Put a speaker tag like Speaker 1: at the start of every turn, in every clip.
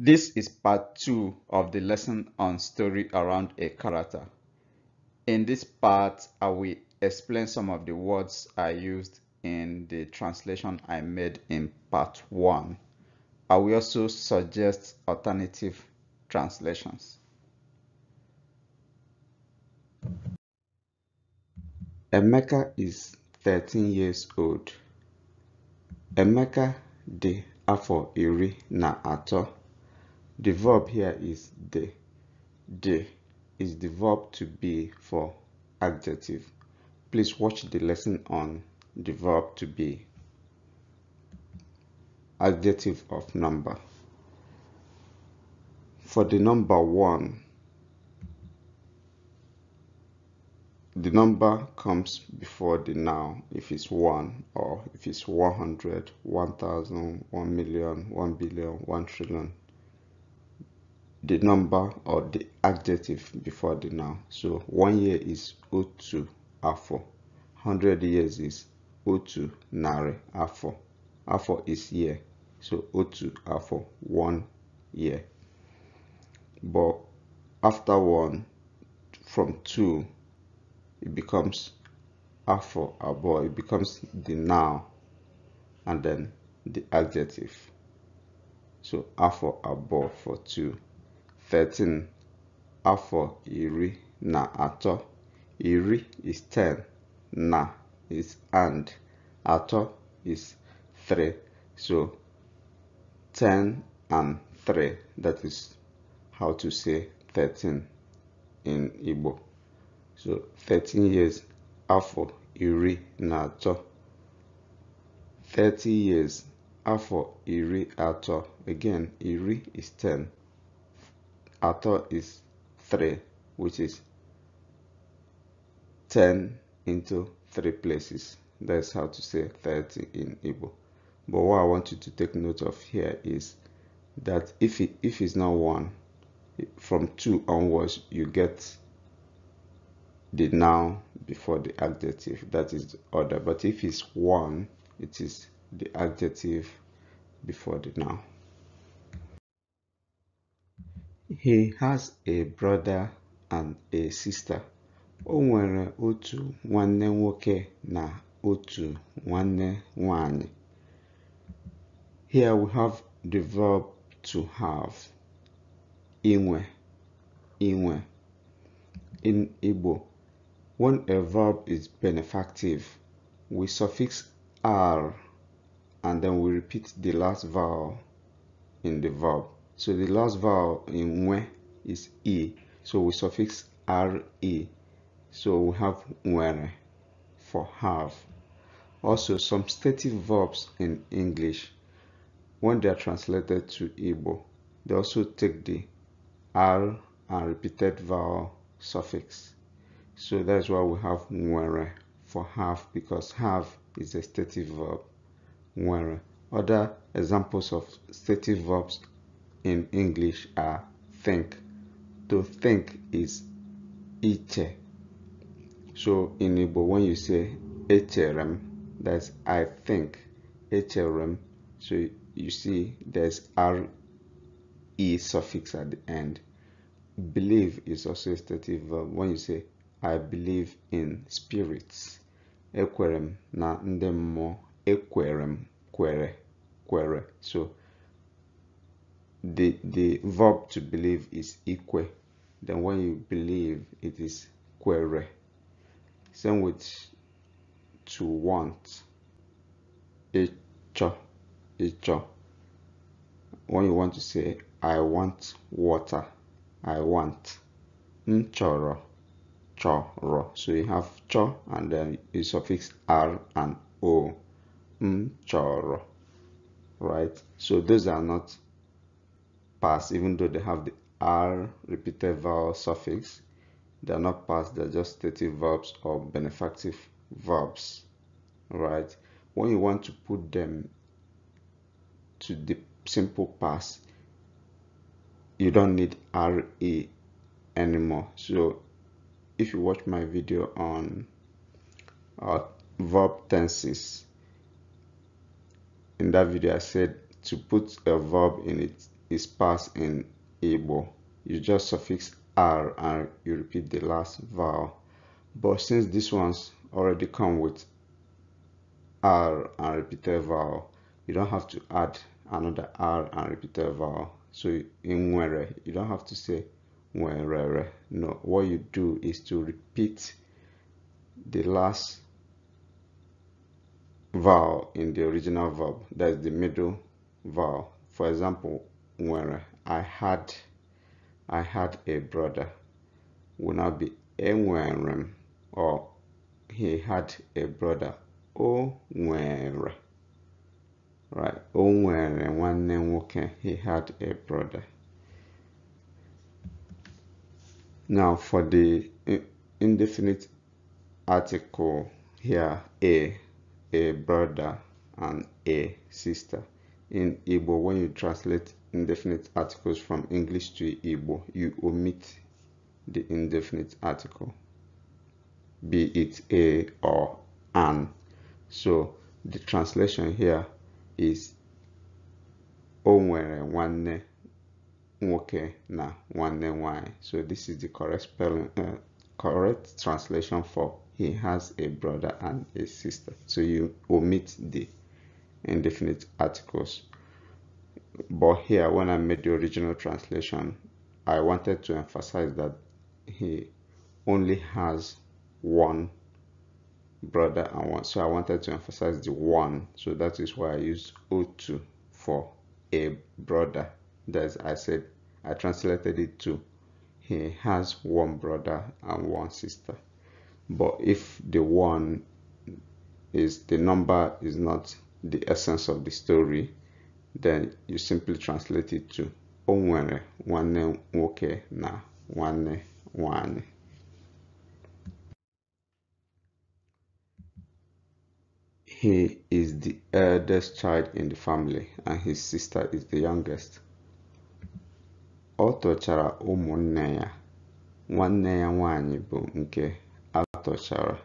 Speaker 1: This is part two of the lesson on story around a character. In this part, I will explain some of the words I used in the translation I made in part one. I will also suggest alternative translations. Emeka is 13 years old. Emeka de afọ iri na atọ. The verb here is the. The is the verb to be for adjective. Please watch the lesson on the verb to be. Adjective of number. For the number one, the number comes before the noun if it's one or if it's 100, 1000, 1 million, 1 billion, 1 trillion, the number or the adjective before the noun. So one year is O2 afọ. Hundred years is O2 nare afọ. Afọ is year. So O2 afọ one year. But after one, from two, it becomes afọ abo. It becomes the noun and then the adjective. So afọ abo for two. 13 afọ iri na atọ iri is 10 na is and atọ is 3 so 10 and 3 that is how to say 13 in Igbo so 13 years afọ iri na atọ 30 years afọ iri atọ again iri is 10 thought is 3 which is 10 into 3 places that's how to say 30 in Igbo but what I want you to take note of here is that if it, if it's not 1 from 2 onwards you get the noun before the adjective that is the order but if it's 1 it is the adjective before the noun he has a brother and a sister. O nwere otu nwanne nwoke na otu nwanne nwanyị. Here we have the verb to have. Inwe, inwe. In Igbo, when a verb is benefactive, we suffix r and then we repeat the last vowel in the verb. So the last vowel in we is e. So we suffix re. So we have were for have. Also, some stative verbs in English, when they are translated to Igbo, they also take the r and repeated vowel suffix. So that's why we have nwere for have because have is a stative verb. Nwere. Other examples of stative verbs in English are think. To think is iche. So in Igbo, when you say echerem, that's I think, echerem. So you see there's re suffix at the end. Believe is also a stative verb. When you say I believe in spirits, ekwerem na ndemmo ekwerem quere quere So the the verb to believe is equal then when you believe it is quere same with to want icho icho when you want to say i want water i want nchoro choro so you have cho and then you suffix r and o nchoro right so those are not Pass, even though they have the r repeated vowel suffix they are not past they're just stative verbs or benefactive verbs right when you want to put them to the simple past you don't need re anymore so if you watch my video on uh, verb tenses in that video i said to put a verb in its is past in able. You just suffix R and you repeat the last vowel. But since this ones already come with R and repeated vowel, you don't have to add another R and repeated vowel. So in Nwere, you don't have to say Nwerere. No, what you do is to repeat the last vowel in the original verb. That's the middle vowel. For example, nwere I had I had a brother would not be enwere m or he had a brother o nwere right o nwere nwanne nwoke he had a brother now for the indefinite article here a a brother and a sister in Igbo when you translate indefinite articles from English to Igbo, you omit the indefinite article, be it a or an. So the translation here is onwere nwanne nwoke na nwanne nwanyị. So this is the correct spelling, uh, correct translation for he has a brother and a sister. So you omit the indefinite articles but here when I made the original translation I wanted to emphasize that he only has one brother and one so I wanted to emphasize the one so that is why I used O2 for a brother that's I said I translated it to he has one brother and one sister but if the one is the number is not the essence of the story then you simply translate it to o nwere nwanne nwoke na nwanne nwanyị he is the eldest child in the family and his sister is the youngest ọ tọchara ụmụnne ya nwanne ya nwanyị bụ nke atọchara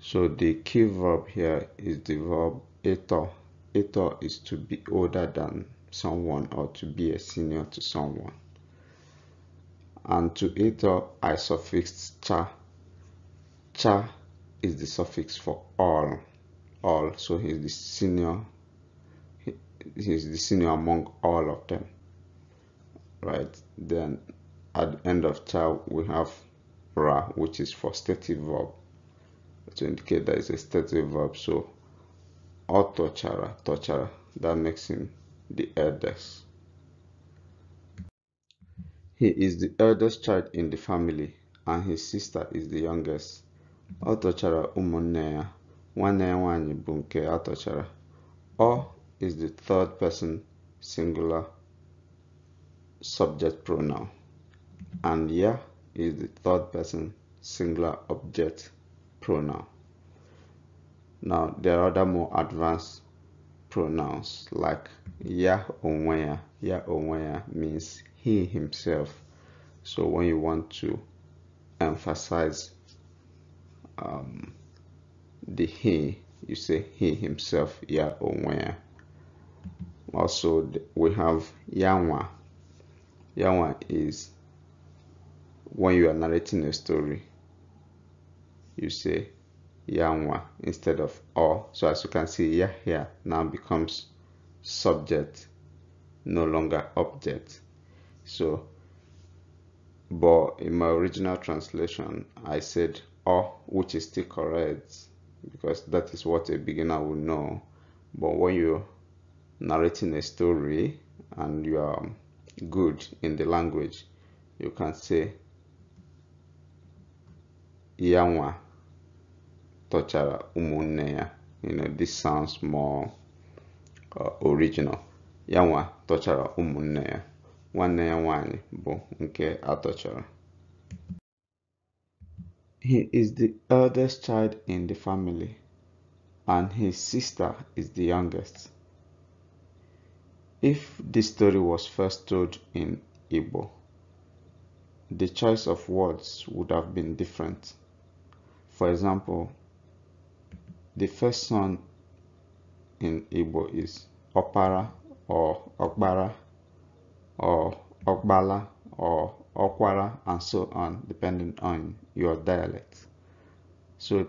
Speaker 1: so the key verb here is the verb ịtọ Ito is to be older than someone or to be a senior to someone. And to Ito, I suffixed cha. Cha is the suffix for all. All, so he's the senior. He, he's the senior among all of them. Right, then at the end of cha we have ra, which is for stative verb to indicate that it's a stative verb. So or Tochara. Tochara. That makes him the eldest. He is the eldest child in the family, and his sister is the youngest. Ọ Umonea, ụmụnne ya. Nwanne ya Ọ is the third person singular subject pronoun, and ya is the third person singular object pronoun. Now, there are other more advanced pronouns like ya onwaya. Ya onwaya means he himself. So when you want to emphasize um, the he, you say he himself, ya onwaya. Also, we have yanwa. Yanwa is when you are narrating a story, you say Yangwa instead of or. So as you can see, Yahya now becomes subject, no longer object. So, but in my original translation, I said or, which is still correct because that is what a beginner will know. But when you're narrating a story and you are good in the language, you can say Yangwa tọchara you know this sounds more uh, original tọchara nke atọchara he is the eldest child in the family and his sister is the youngest if this story was first told in igbo the choice of words would have been different for example the first son in Igbo is Opara or Okbara or Okbala or Okwara and so on, depending on your dialect. So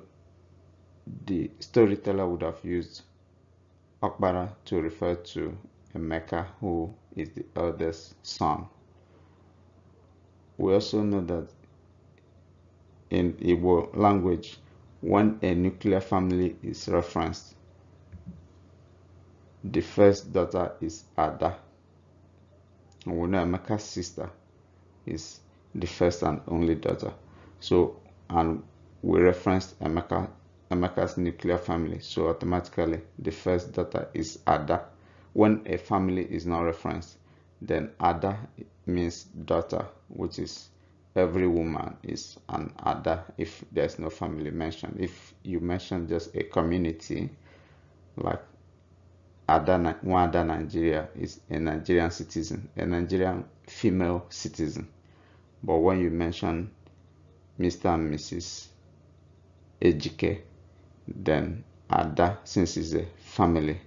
Speaker 1: the storyteller would have used Okbara to refer to Emeka, who is the eldest son. We also know that in Igbo language, when a nuclear family is referenced. The first daughter is Ada. Wunemeka's sister is the first and only daughter. So, and we referenced Emeka, Emeka's nuclear family. So automatically, the first daughter is Ada. When a family is not referenced, then Ada means daughter, which is every woman is an other if there's no family mentioned. If you mention just a community, like other, one other Nigeria is a Nigerian citizen, a Nigerian female citizen. But when you mention Mr. and Mrs. Ejike, then Ada, since it's a family,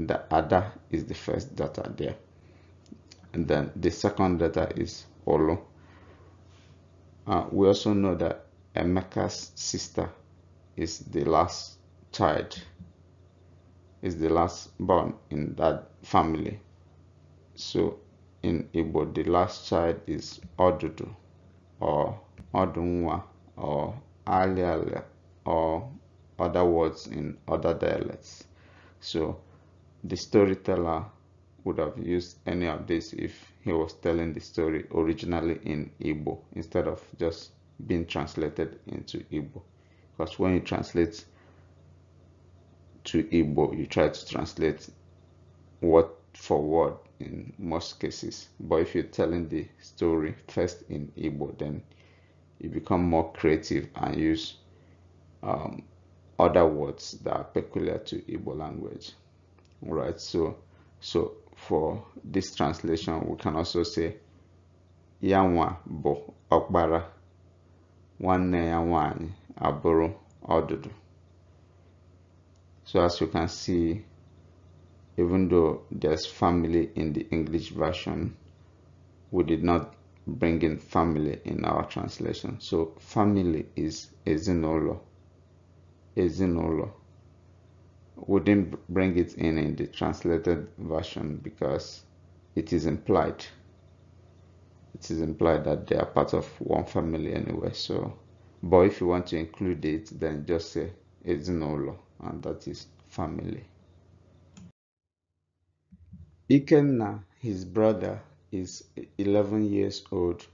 Speaker 1: the Ada is the first data there. And then the second data is Olo uh, we also know that Emeka's sister is the last child, is the last born in that family. So in Igbo, the last child is Odudu or Odunwa or Aliala or other words in other dialects. So the storyteller would have used any of this if he was telling the story originally in Igbo instead of just being translated into Igbo. Because when you translate to Igbo, you try to translate word for word in most cases. But if you're telling the story first in Igbo, then you become more creative and use um, other words that are peculiar to Igbo language. Right? so so for this translation, we can also say Yanwa bo okbara, nwanne ya abụrụ ọdụdụ. So as you can see, even though there's family in the English version, we did not bring in family in our translation. So family is "ezinolo," "ezinolo." wouldn't bring it in in the translated version because it is implied it is implied that they are part of one family anyway so but if you want to include it then just say it's law, and that is family Ikenna his brother is 11 years old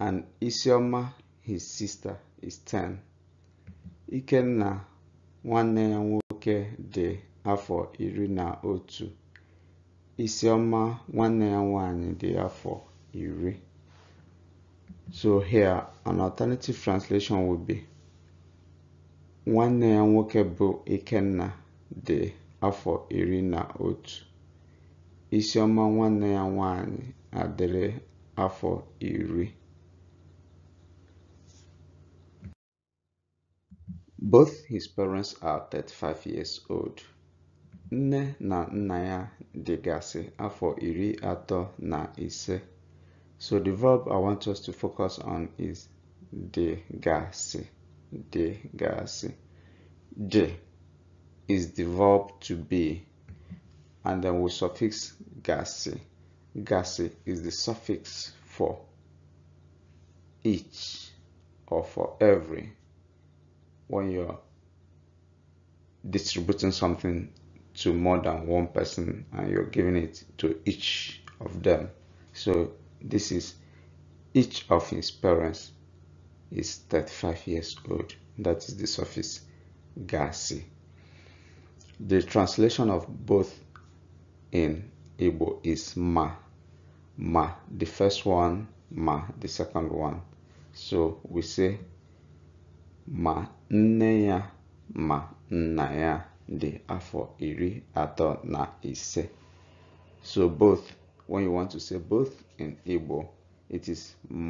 Speaker 1: and Isioma his sister is 10 Ikenna nwanne ya nwoke dị afọ iri na otu Isioma nwanne ya nwanyị dị afọ iri so here an alternative translation will be nwanne ya nwoke bụ Ikenna dị afọ iri na otu Isioma nwanne ya nwanyị adịrị afọ iri Both his parents are 35 years old. Nne na nna ya dịgasị afọ iri atọ na ise. So the verb I want us to focus on is dịgasị. Dịgasị. D is the verb to be and then we will suffix gasị. Gasị is the suffix for each or for every when you're distributing something to more than one person and you're giving it to each of them. So this is each of his parents is 35 years old. That is the surface. Gasi. The translation of both in Igbo is ma. Ma, the first one, ma, the second one. So we say ma nne ya ma nna ya dị afọ iri atọ na ise so both when you want to say both in Igbo it is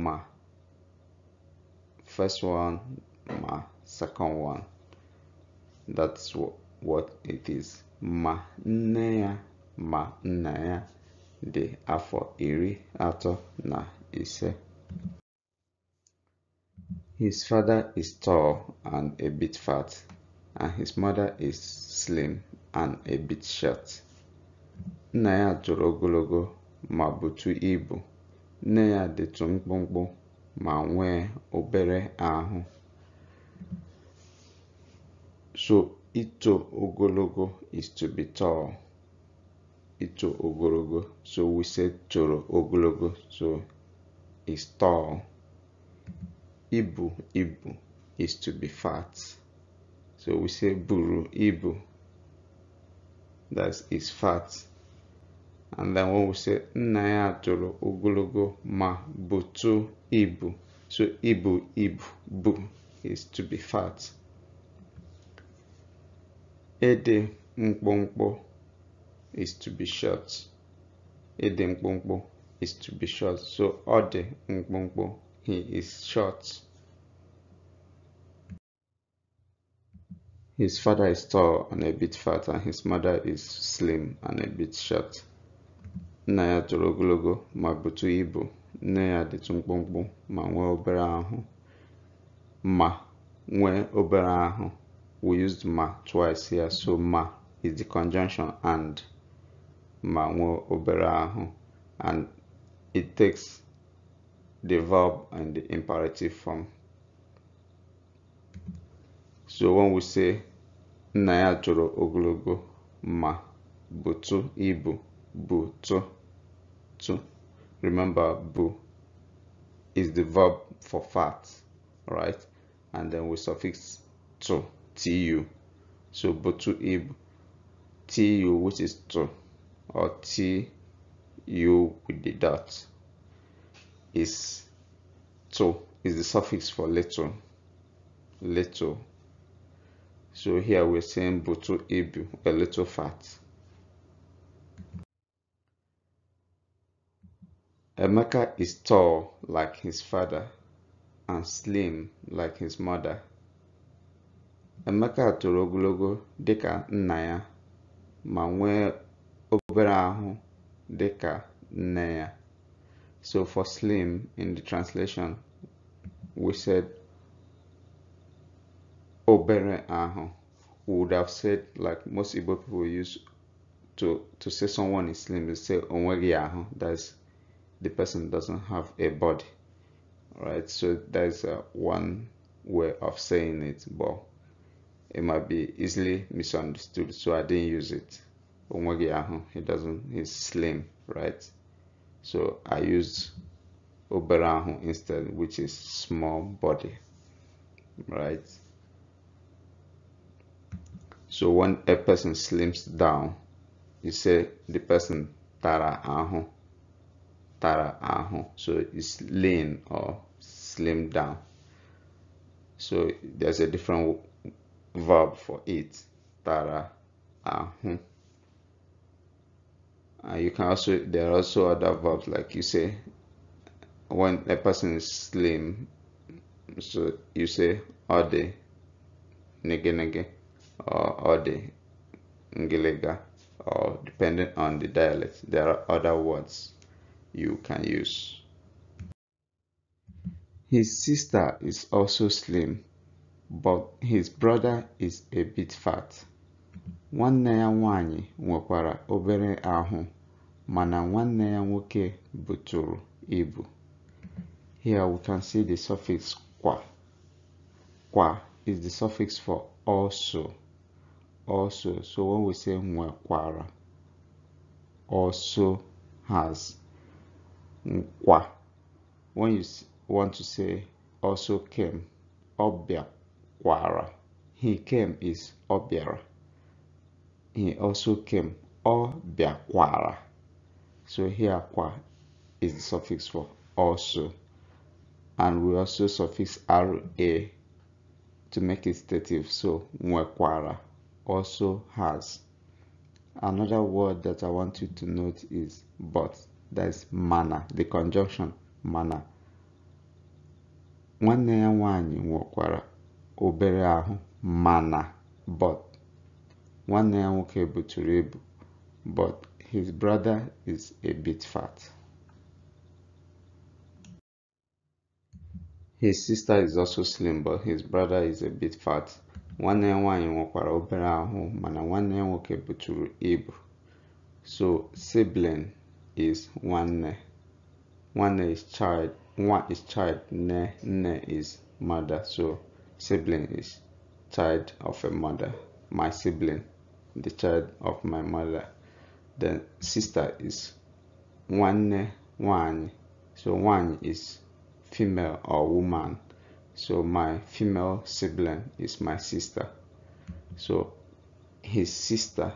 Speaker 1: ma first one ma second one that's what it is ma nne ya ma nna ya dị afọ iri atọ na ise his father is tall and a bit fat, and his mother is slim and a bit short. Nna ya toro ogologo ma butu ibu. Nne ya dịtụ mkpụmkpụ ma nwee obere ahụ. So, ito ogologo is to be tall. Ito ogologo. So, we say toro ogologo. So, is tall ibu ibu is to be fat. So we say buru ibu. That is fat. And then when we say nna toro ogologo ma butu ibu. So ibu ibu bu is to be fat. Ede mkpomkpo is to be short. Ede mkpomkpo is to be short. So ode mkpomkpo he is short. His father is tall and a bit fat, and his mother is slim and a bit short. Naya ya Mabutu ibu, Naya ya dịtụ mkpụmkpụ ma nwee Ma nwee obere We used ma twice here, so ma is the conjunction and ma obera and it takes the verb and the imperative form. So when we say nna ya toro ogologo ma butu ibu butu tu. Remember bu is the verb for fat, right? And then we suffix to tu. So butu ibu tu which is to or tu with the dot is to is the suffix for little, little. so here we're saying butu ibu a little fat emeka is tall like his father and slim like his mother emeka toro ogologo dịka nna ya ma nwee obere ahụ dịka nne ya so for slim in the translation, we said obere aho. We would have said like most Igbo people use to to say someone is slim, they say onweri aho. That's the person doesn't have a body, right? So that's uh, one way of saying it, but it might be easily misunderstood. So I didn't use it. Onweri aho. He doesn't. He's slim, right? So I used Oberahu instead, which is small body, right? So when a person slims down, you say the person tara ahu, tara ahu. So it's lean or slim down. So there's a different verb for it, tara ahu. Uh, you can also there are also other verbs like you say when a person is slim, so you say ode nege nege or ode ngilega" or depending on the dialect there are other words you can use. His sister is also slim, but his brother is a bit fat. nwanne ya nwanyị nwekwara obere ahụ mana nwanne ya nwoke buturu ibu here we can see the suffix kwa kwa is the suffix for also also so when we say nwekwara also has nkwa when you want to say also came ọbịakwara he came is ọbịara he also came or biakwara so here kwa is the suffix for also and we also suffix ra to make it stative so nwekwara also has another word that i want you to note is but that is mana the conjunction mana nwanne ya nwaanyị obere ahụ mana but one nwanne ya able to rib, but his brother is a bit fat his sister is also slim but his brother is a bit fat One ya nwaanyị nwekwara obere ahụ mana nwanne ya nwoke to ibu so sibling is one. nwanne is child one is child nne ne is mother so sibling is child of a mother my sibling the child of my mother. The sister is one one. So one is female or woman. So my female sibling is my sister. So his sister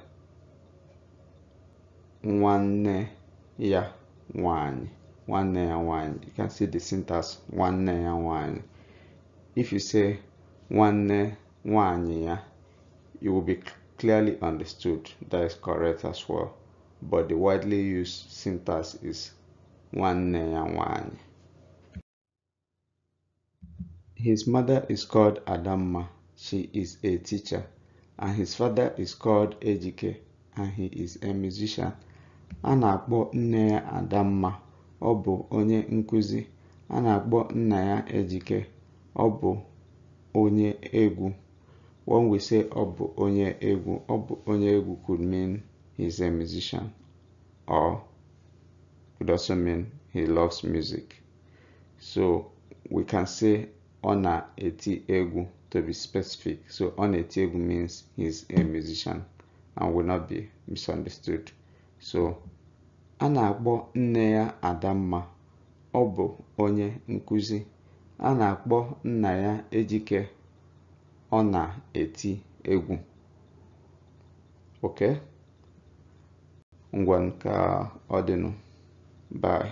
Speaker 1: one yeah one one and one you can see the syntax one and one if you say one one yeah you will be clearly understood, that is correct as well. But the widely used syntax is nwanne ya nwanyị. His mother is called Adamma. She is a teacher. And his father is called Ejike. And he is a musician. A na-akpọ nne ya Adamma. Ọ bụ onye nkuzi. A na-akpọ nna ya Ejike. Ọ bụ onye egwu. when we say bụ Onye Egwu. bụ Onye Egwu could mean he's a musician or could also mean he loves music. So we can say ọ na Eti Egwu to be specific. So ọ na Eti Egwu means he's a musician and will not be misunderstood. So a na-akpọ nne ya Adamma. Ọ bụ onye nkuzi A na-akpọ nna ya Ejike ọ na-eti egwu oke ngwa nke dịnụ bye